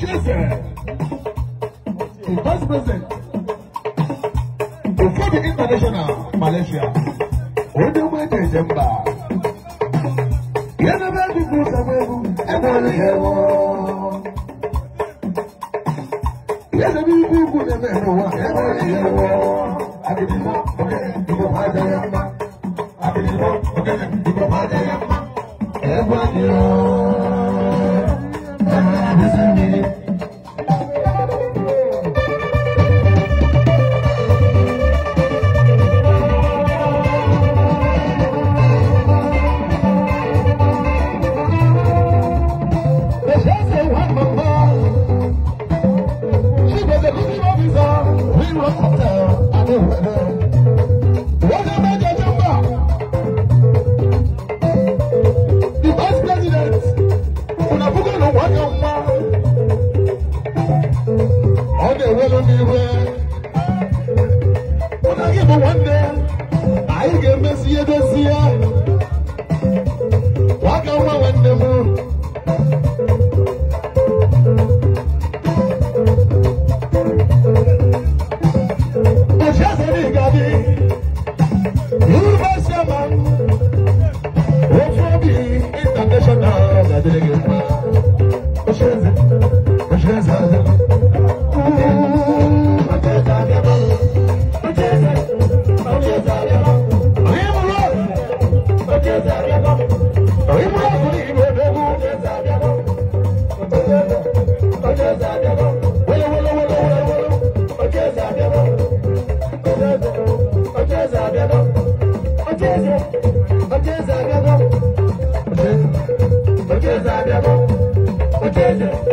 the chancellor, the vice president, before the international Malaysia, on the way to December. Yana ba di kusa ọdún pa ọdún ewelu n'iwe ụnaghị bụ nwanne anyị ga-emesi ihe dozie nwa ga nwa nwanne m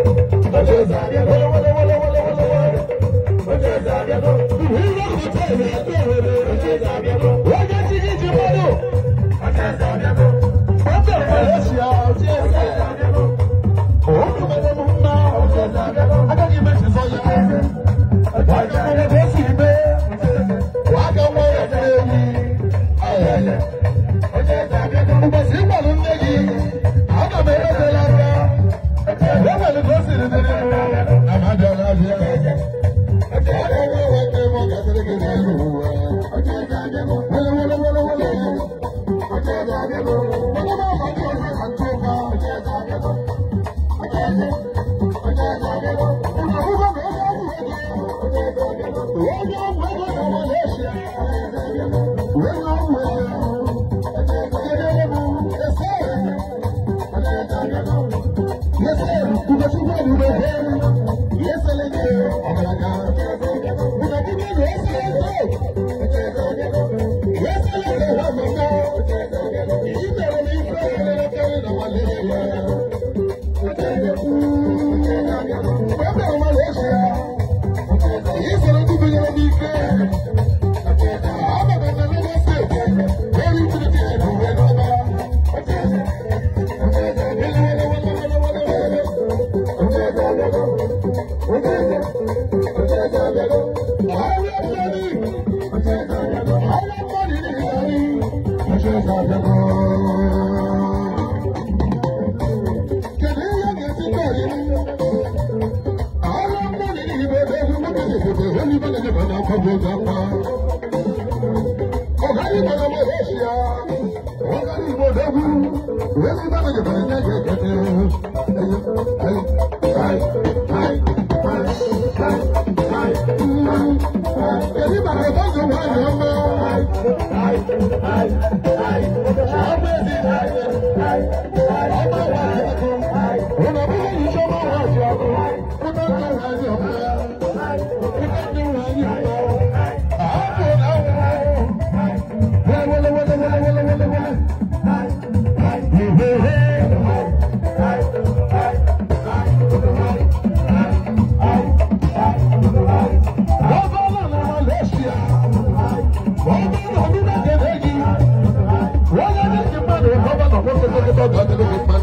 Ọjọ́ ti ní ti mọ́dọ̀. Ọjọ́ ìsàbíọ́dọ̀. Ọjọ́ ìsàbíọ́dọ̀. y ese le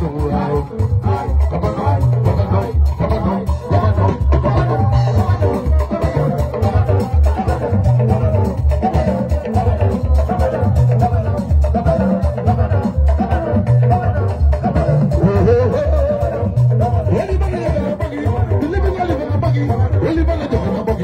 Anybody ever buggy? buggy?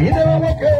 He never woke up.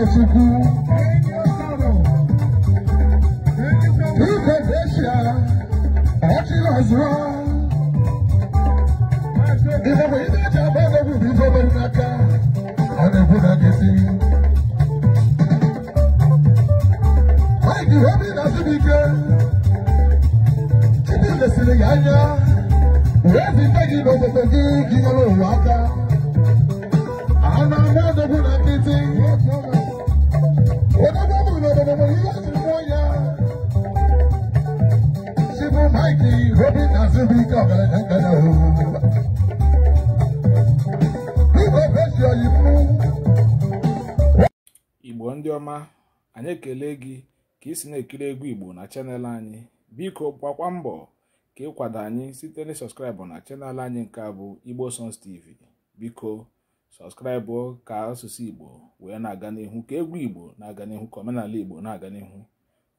Chukwu Indonesia ọchịrị ọzụọ ihe bụ ihe eji agba egwu bụ ihe obere n'aka ọ na-ekwu na nkịtị Mike ihe obi na-asị m ike Chidi lesiri ya anya wee zite gị n'obodo gị gị nyere ụwa aka a na-agba egwu na nkịtị igbo ndị ọma anyị ekele gị ka isi na-ekiri egwu igbo na chanel anyị biko gbakwa mbọ ka ịkwado anyị site na sọskraịbụ na chanel anyị nke abụ bụ igbo songs tv biko sọskraịbụ ka asụsụ igbo wee na-aga n'ihu ka egwu igbo na-aga n'ihu ka omenala igbo na-aga n'ihu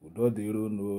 udo dịrono